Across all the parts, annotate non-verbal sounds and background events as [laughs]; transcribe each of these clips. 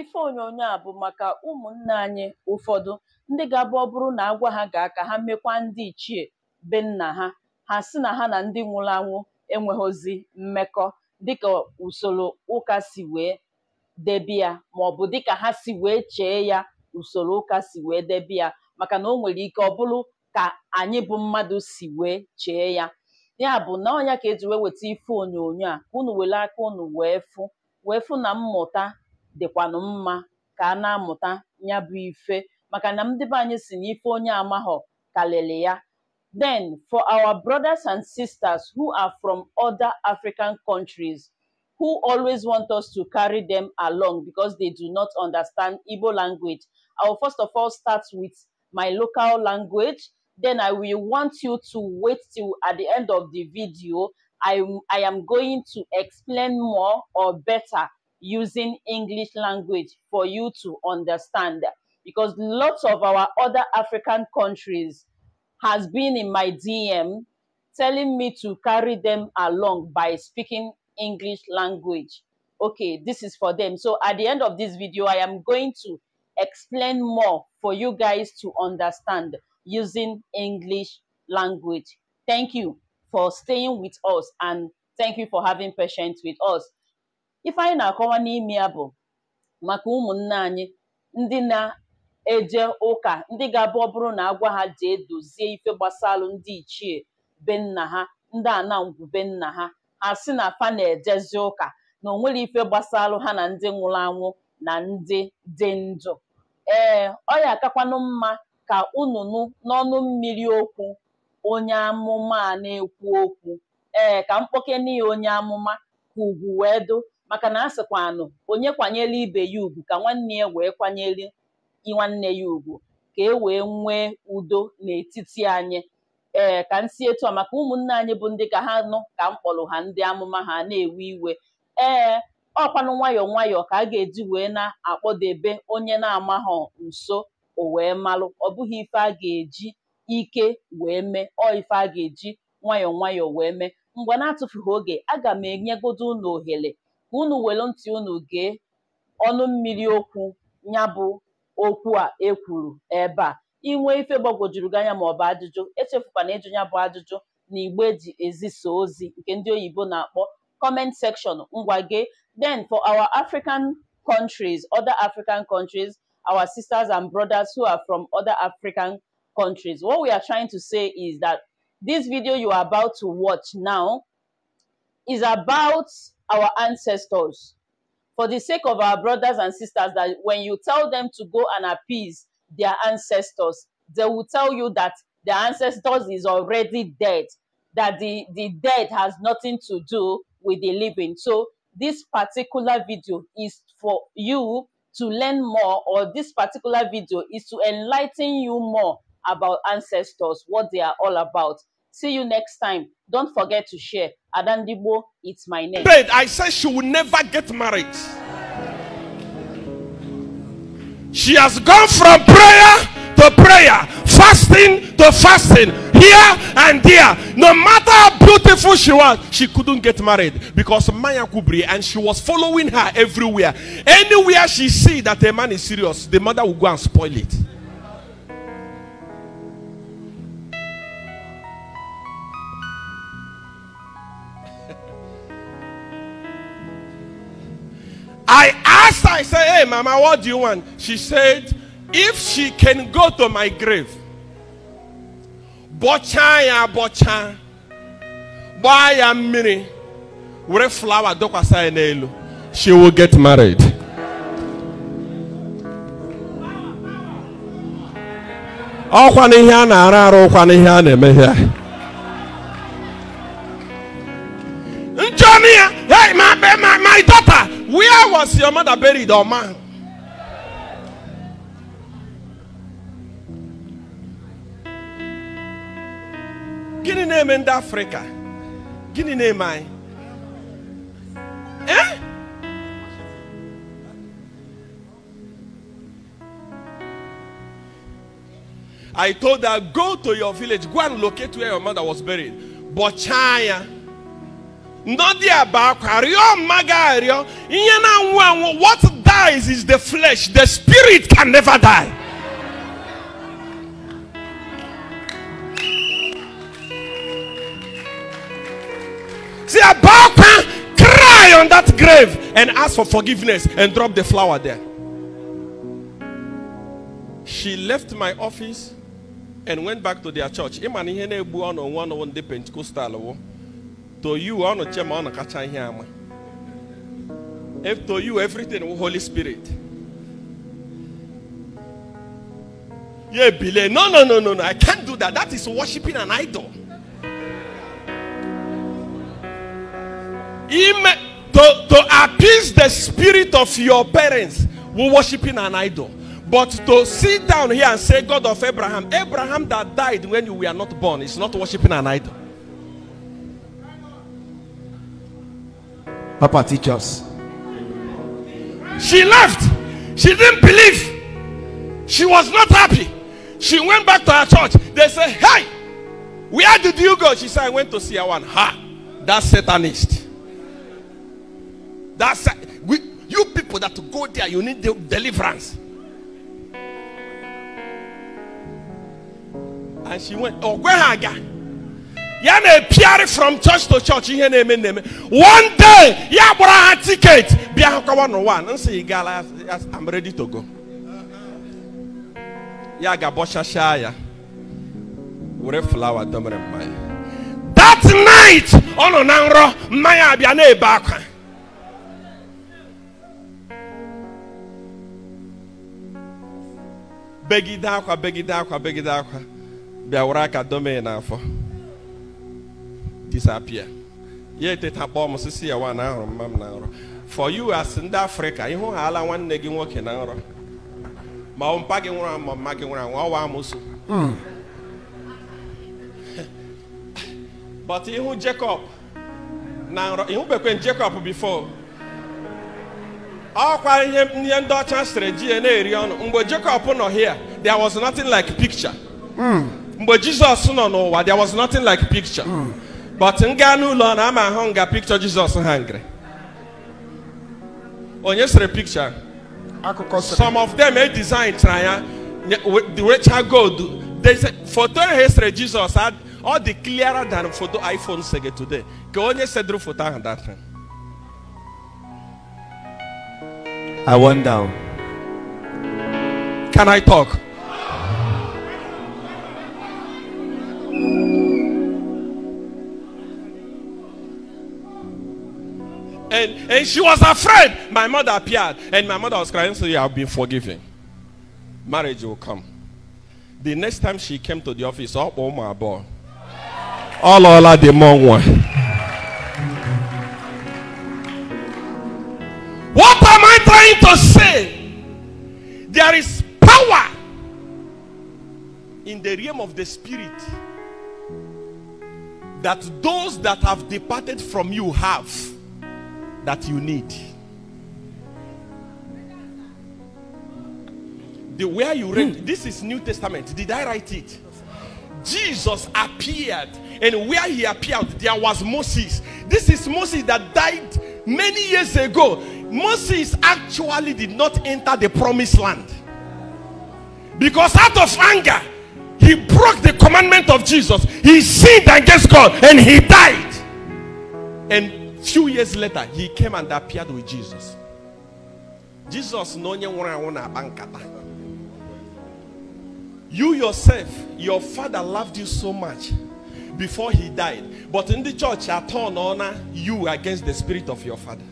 ife onyonyo a bụ maka ụmụnne anyị ụfọdụ ndị ga-abụ ọ bụrụ na agwa ha gaa ka ha mekwa ndị ichie be nna ha ha si na ha na ndị nwụrụ anwụ enweghịzi mmekọ dịka usoro ụka si wee debe ya maọbụ dịka ha si wee chee ya usoro ụka si wee debe ya maka na o nwere ike ọ bụrụ ka anyị bụ mmadụ si wee chee ya ya bụ na ọnya ka eji wee weta ife onyonyo a ka unu were aka unu wee fụ wee fụ na mmụta dịkwanụ mma ka a na-amụta ya bụ ife maka na ndị be anyị si onye ya then for our brothers and sisters who are from other African countries who always want us to carry them along because they do not understand Igbo language I will first of all start with my local language then I will want you to wait till at the end of the video I, I am going to explain more or better using English language for you to understand. Because lots of our other African countries has been in my DM telling me to carry them along by speaking English language. Okay, this is for them. So at the end of this video, I am going to explain more for you guys to understand using English language. Thank you for staying with us and thank you for having patience with us. ife anyị na-akọwa n'ime ya bụ maka ụmụnne anyị ndị na-eje ụka ndị ga-abụ ọ bụrụ na agwa ha jee dozie ife gbasalụ ndị ichie be nna ha ndị anangwu be nna ha ha si na fa na-ejezi ụka na onwere ife gbasalụ ha na ndị nwụrụ anwụ na ndị dị ndụ ee ọ ya akakwanụ mma ka ununu n'ọnụ mmiri okwu onye amụma a na-ekwu okwu ee ka mkpoke ya onye amụma ka ugwu wee dụ. maka na a sịkwanụ onye kwanyere ibe ya ugwu ka nwanne ya wee kwanyere nwanne ya ugwu ka e wee nwee udo n'etiti anyị ee ka m etu a maka ụmụnne anyị bụ ndị ka ha nụ ka m kpọrọ ha ndị amụma ha na-ewe iwe ee ọkwanụ nwayọ nwayọ ka a ga-eji wee na-akpọdebe onye na-amaghọ nso o wee malụ ọ bụghị ife a ga-eji ike wee mee ọ ife a ga-eji nwayọ nwayọ wee mee mgbe na-atụfughị oge aga m enyegodo ụlọ ohere ka unu welu ntị unu gee ọnụ mmiri okwu ya bụ okwu a ekwuru ebe a inwe ife gbagwojuru gị anya ma ọ bụ ajụjụ echefukwana ịjụ ya bụ ajụjụ na igbe eji ezisa ozi nke ndị oyibo na-akpọ comment section ngwa gee then for our African countries other African countries our sisters and brothers who are from other African countries what we are trying to say is that this video you are about to watch now is about our ancestors. For the sake of our brothers and sisters, that when you tell them to go and appease their ancestors, they will tell you that their ancestors is already dead, that the, the dead has nothing to do with the living. So this particular video is for you to learn more, or this particular video is to enlighten you more about ancestors, what they are all about. See you next time. Don't forget to share. Adandibo, it's my name. I said she will never get married. She has gone from prayer to prayer, fasting to fasting, here and there. No matter how beautiful she was, she couldn't get married because Maya Kubri and she was following her everywhere. Anywhere she see that a man is serious, the mother will go and spoil it. I asked her, I said, Hey, Mama, what do you want? She said, If she can go to my grave, bọchaa ya abọcha gbaa ya mmiri were flawa dọkwasa ya n'elu she will get married. ọkwa n'ihe a na-arụ arụ ọkwa n'ihe a na-emehie your mother buried or man? Gini name in Africa? Gini name I? Eh? I told her, go to your village, go and locate where your mother was buried. But China. ndị aba akwa rịọ mma arịọ ihe na-anwụ anwụ what dies is the flesh the spirit can never die See, Abaka cry on that grave and ask for forgiveness and drop the flower there. She left my office and went back to their church. Imani hene buano one on the Pentecostal. To you, I want to check my catching him. If to you, everything will Holy Spirit. Yeah, Billy. No, no, no, no, no. I can't do that. That is worshiping an idol. Ima- to, to appease the spirit of your parents, we're worshiping an idol. But to sit down here and say, God of Abraham, Abraham that died when you were not born, is not worshiping an idol. Papa, teach us. She left. She didn't believe. She was not happy. She went back to her church. They said, Hey, where did you go? She said, I went to see one. Ha! that Satanist. That's we, you people that go there, you need the deliverance. And she went, Oh, where are you? ya na-epiarị from church to church ihe na-eme na-eme one day ya gbara ha tiketi bịa hụkọwa n'ụwa oh nsị gala I'm ready to go ya ga-abọchachaa ya were flawa domere mmanya that night ọ nọ na nrọ mmanya abịa na-ebe akwa begide akwa begide akwa begide akwa bịa were aka dome n'afọ disappear ya eteta kpọọ m sisi ya wa na ahụrụ mma m na nrọ for you as ndị africa ịhụ ha ala nwanne gị nwoke na nrọ ma ọ mpa gị nwụrụ anwụ ma mma gị nwụrụ anwụ ọwa amụsụ but ihu Jacob na nrọ ihubekwe Jacob before ọkwa ihe ihe ndị ọcha sịrị ji ya na-eri ọnụ mgbe Jacob nọ here there was nothing like picture hmm. mgbe jesus nọ n'ụwa there was nothing like picture hmm. but m gaa n'ụlọ na ama ahụ nga pikchọ Jizọs hangri onye sere pikchọ akụkọ some of them e design chara ya wecha gold foto ahụ e esere Jizọs ọ dị clearer than foto iPhone sege today ka onye seduru foto ahụ that time I wonder Can I talk? And, and she was afraid. My mother appeared. And my mother was crying, so you have been forgiven. Marriage will come. The next time she came to the office, oh, oh my boy. All all the mom one. What am I trying to say? There is power in the realm of the spirit that those that have departed from you have that you need. The where you read, hmm. this is New Testament. Did I write it? Jesus appeared, and where he appeared, there was Moses. This is Moses that died many years ago. Moses actually did not enter the promised land because out of anger, he broke the commandment of Jesus. He sinned against God and he died. And Few years later, he came and appeared with Jesus. Jesus no You yourself, your father loved you so much before he died. But in the church, I turn honor you against the spirit of your father.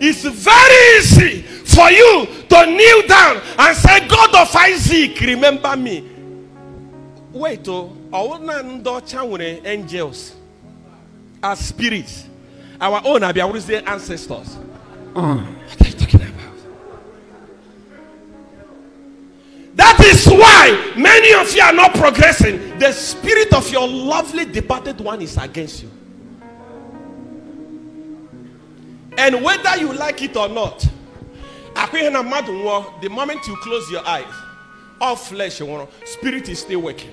It's very easy for you to kneel down and say, God of Isaac, remember me. Wait, oh. ọwụ ndị ọcha nwere angels as spirits our own abịawụrụzie ancestors uh. that is why many of you are not progressing the spirit of your lovely departed one is against you and whether you like it or not akwa ihe na mmadụ nwụọ the moment you close your eyes all flesh nwụrụ spirit is still working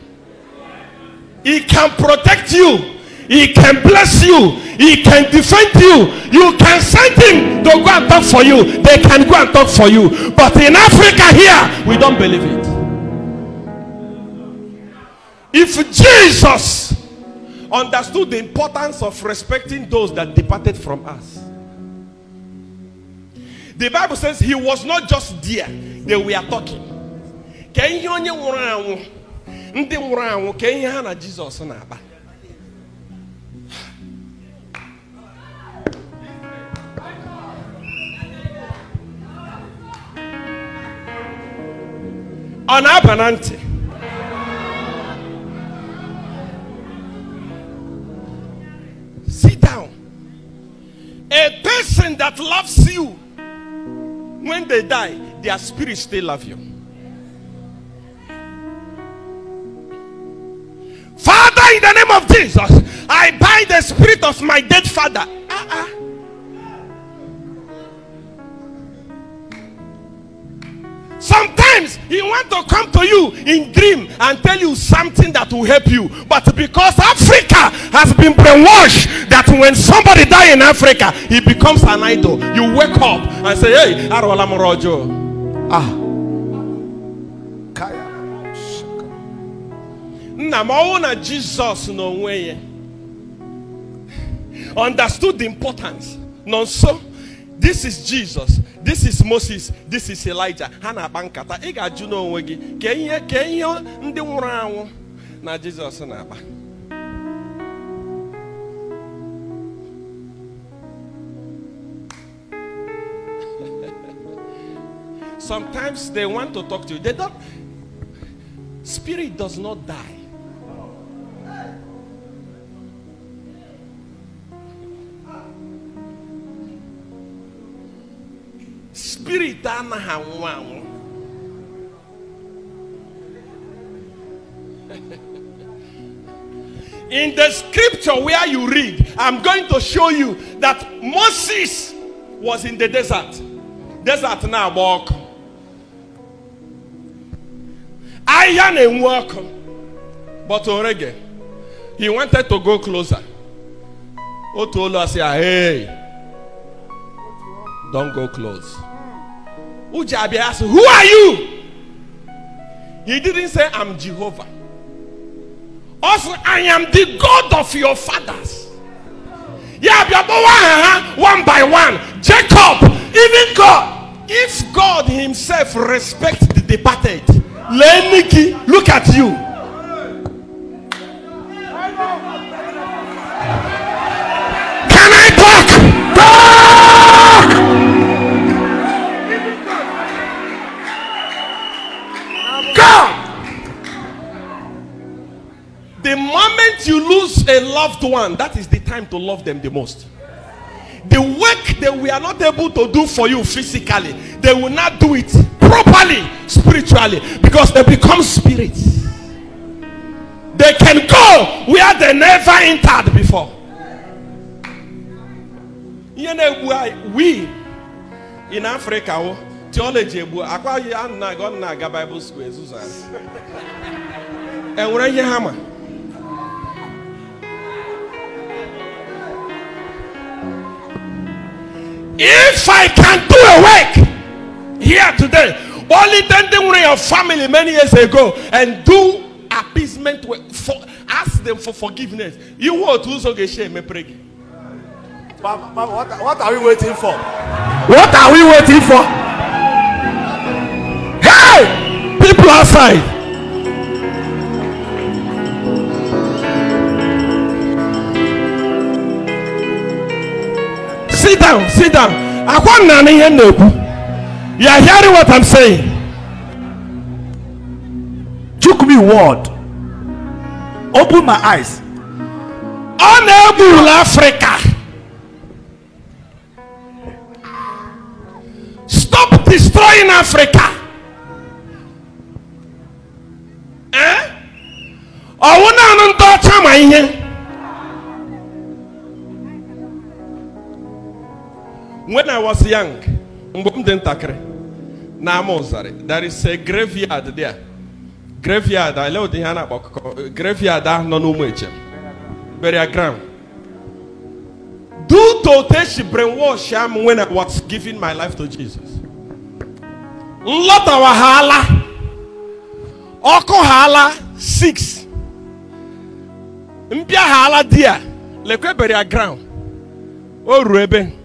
He can protect you. He can bless you. He can defend you. You can send him to go and talk for you. They can go and talk for you. But in Africa here, we don't believe it. If Jesus understood the importance of respecting those that departed from us, the Bible says he was not just there, they were talking ndị nwụrụ anwụ ka ihe ha na jizọs na-akpa ọ na-aba na ntị sit down a person that loves you when they die their spirit still love you in the name of Jesus, I bind the spirit of my dead father. Sometimes he want to come to you in dream and tell you something that will help you. But because Africa has been brainwashed that when somebody die in Africa, he becomes an idol. You wake up and say, hey, Arwala Morojo. Ah. nna ma ọnwụ na jizọs n'onwe ya understood the importance nọ nso this is jesus this is moses this is elijah ha na-akpa nkata ị ga-ajụ n'onwe gị ka ihe ka ihe ndị nwụrụ anwụ na jizọs na-akpa [laughs] sometimes they want to talk to you they don't spirit does not die anaghị anwụ anwụ in the scripture where you read, I'm going to show you that Moses was in the desert. Desert now, walk. Iron and walk. But Orege, he wanted to go closer. Otolo said, Hey, don't go close. Ujabi asked, Who are you? He didn't say, I'm Jehovah. Also, I am the God of your fathers. Yeah, uh-huh, one by one. Jacob, even God. If God Himself respects the departed, Leniki, look at you. loved one, that is the time to love them the most. The work that we are not able to do for you physically, they will not do it properly spiritually because they become spirits. They can go where they never entered before. You know, why we in Africa, theology, Bible school, enwere [laughs] ihe hammer? If I can do a work here today, only then they were your family many years ago and do appeasement for ask them for forgiveness. You want to get shame pray. mama, what, what are we waiting for? What are we waiting for? Hey, people outside. sit down sit down akwa nnane ihe na-ekwu you are hearing what i'm saying took me word open my eyes ọ na-egwurula afrịka stop destroying africa eh? ọwụ naanị ndị ọcha ma ihe When I was young, there is a graveyard there. Graveyard, I love the Hana Graveyard, ah, no no Burial ground. Do to this brainwash, i when I was giving my life to Jesus. Lot of hala. Oko hala six. Mpia hala dia. Lekwe burial ground. Oh, ruebe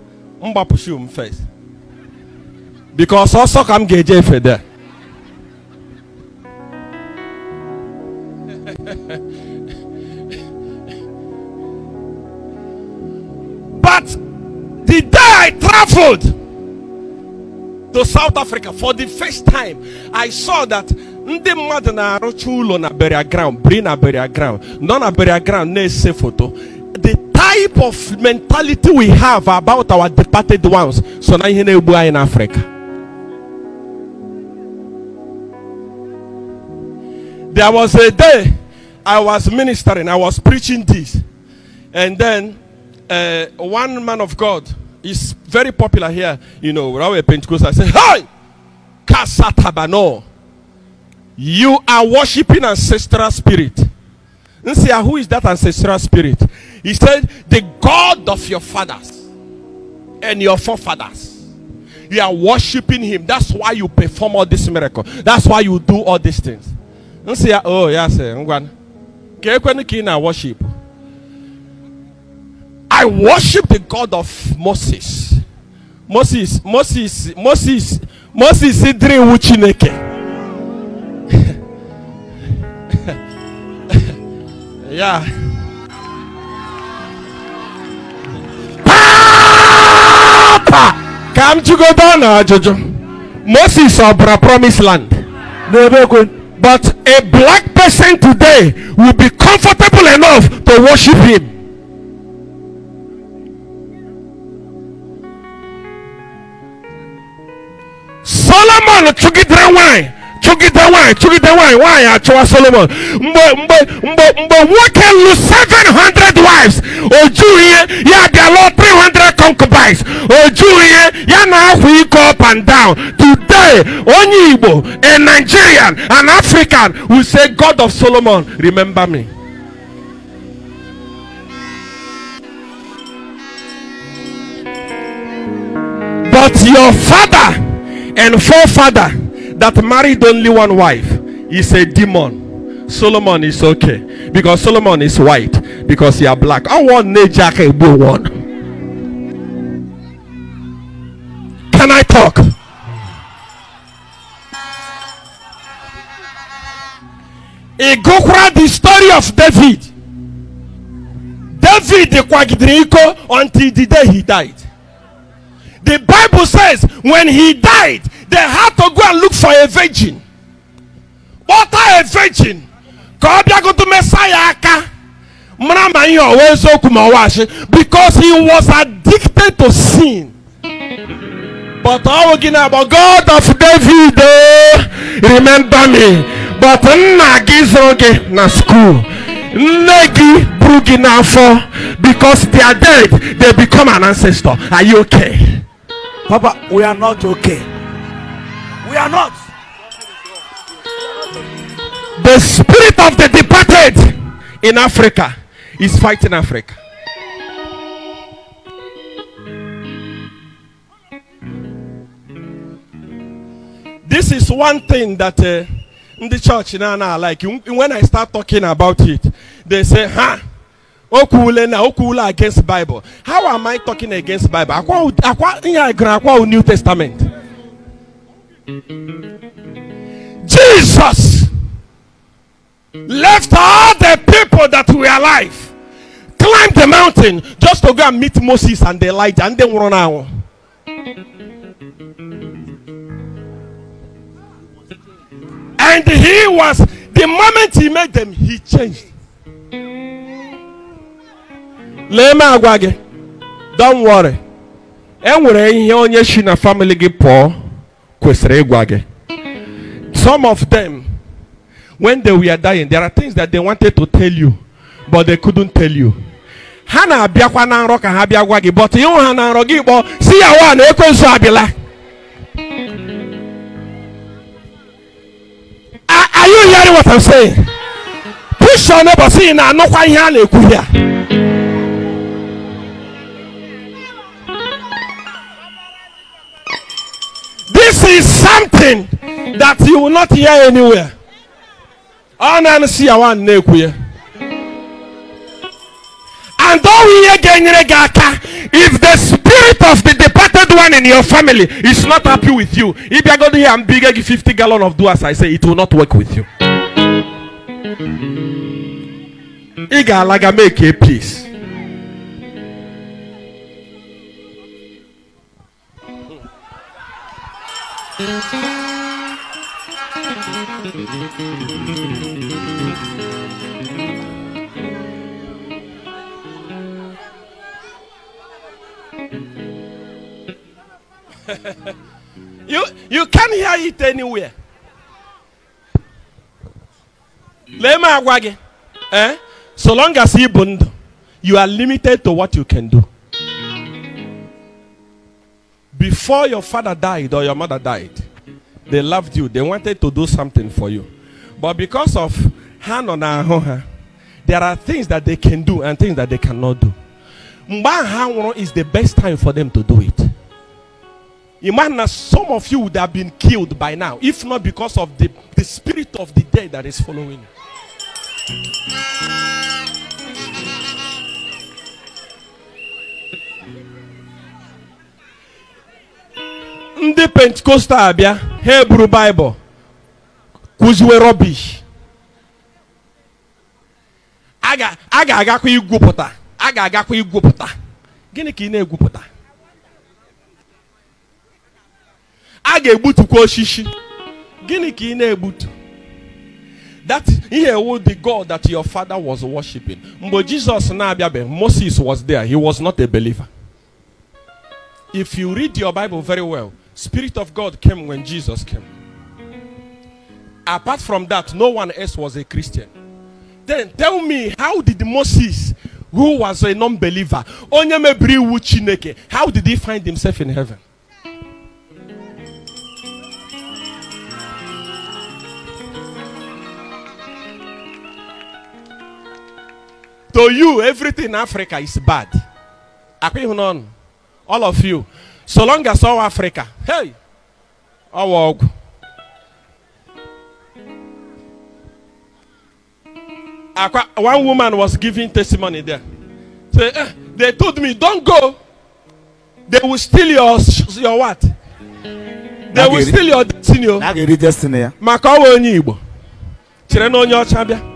mgbapụsị m first because also ka m ga there [laughs] but the day I traveled to South Africa for the first time, I saw that ndị mmadụ na-arụcha ụlọ na burial ground bring na burial ground nọ na burial ground na-ese foto the type of mentality we have about our departed ones so na ihe na in africa there was a day i was ministering i was preaching this and then uh, one man of god is very popular here you know where we're pentecostal i say hey kasatabano you are worshiping ancestral spirit see who is that ancestral spirit? He said, The God of your fathers and your forefathers. You are worshiping him. That's why you perform all this miracle. That's why you do all these things. see. Oh, yes, eh, Ngwan. worship. I worship the God of Moses. Moses, Moses, Moses, Moses, Idri Wuchineke. Yeah. to go down now, uh, Jojo. moses of the promised land but a black person today will be comfortable enough to worship him solomon chụgidere nwanyị chụgide nwaanyị chụgide nwaanyị nwaanyị achụwa solomon But but but but what can lụrụ 700 wives Oh jughị yeah ya bịa 300 concubines Oh jughị yeah now we go up and down today onye igbo a nigerian an african will say god of solomon remember me but your father and forefather that married only one wife is a demon. Solomon is okay because Solomon is white because you are black. I want nature can one. Can I talk? Igokwa the story of David. David kwagidere kwagidriko until the day he died. The Bible says when he died, they had to go and look for a virgin kpọta a virgin ka ọ bịagotu mesaya aka mara ma ihe ọwa eziokwu ma ọwa asị because he was addicted to sin but ọwụ gị na agba god of david remember me but nna gị zụrụ gị na school nne gị buru gị n'afọ because they are dead they become an ancestor are you okay papa we are not okay We are not. The spirit of the departed in Africa is fighting Africa. This is one thing that uh, in the church now, now, like when I start talking about it, they say, huh? Okule na against Bible. How am I talking against Bible? Akwa akwa New Testament. Jesus left all the people that were alive, climbed the mountain just to go and meet Moses and Elijah, and then run out. And he was, the moment he met them, he changed. Lema m do don't worry enwere in onye si na family get poor. kwesịrị ịgwa gị some of them when they were dying there are things that they wanted to tell you but they couldn't tell you ha na-abịakwa na nrọ ka ha bịa gwa gị but ịhụ ha na nrọ gị kpọọ si ya wa na ekwensu abịala are you hearing what I'm saying push your neighbor si na anụkwa ihe a na-ekwu ya is something that you will not hear anywhere. And if the spirit of the departed one in your family is not happy with you, if you are going to hear and bigger 50 gallon of do as I say, it will not work with you. Iga alaga make a peace. [laughs] you you can hear it anywhere. Let me eh? So long as you bond, you are limited to what you can do. Before your father died or your mother died, they loved you. They wanted to do something for you. But because of hand on there are things that they can do and things that they cannot do. Mbahanworo is the best time for them to do it. Imagine some of you would have been killed by now, if not because of the, the spirit of the dead that is following you. ndị pentikostal abịa ha eburu baịbụl kụziwe rọbish a ga-agakwa igwupụta a ga-agakwa igwupụta gịnị ka ị na-egwupụta a ga-egbutukwa osisi gịnị ka ị na-egbutu that ihe ewu the god that your father was worshiping mgbe jesus na-abịabeghị moses was there he was not a believer if you read your bible very well Spirit of God came when Jesus came. Apart from that, no one else was a Christian. Then tell me, how did Moses, who was a non-believer, how did he find himself in heaven? to you, everything in Africa is bad. All of you. so long as all africa hey ọwọ ọgwụ akwa one woman was giving testimony there say eh, they told me don go they will steal your your what they will steal your destiny o oh. maka ọwa onye igbo chere na onye ọcha bịa.